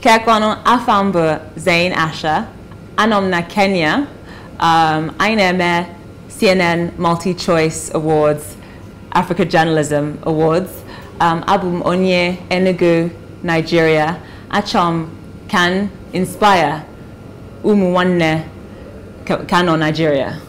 Kakwano Afambu Zain Asha, Anomna Kenya, um, Aineme CNN Multi Choice Awards, Africa Journalism Awards, um, Abum Onye Enugu Nigeria, Achom Can Inspire Umuwanne Kano Nigeria.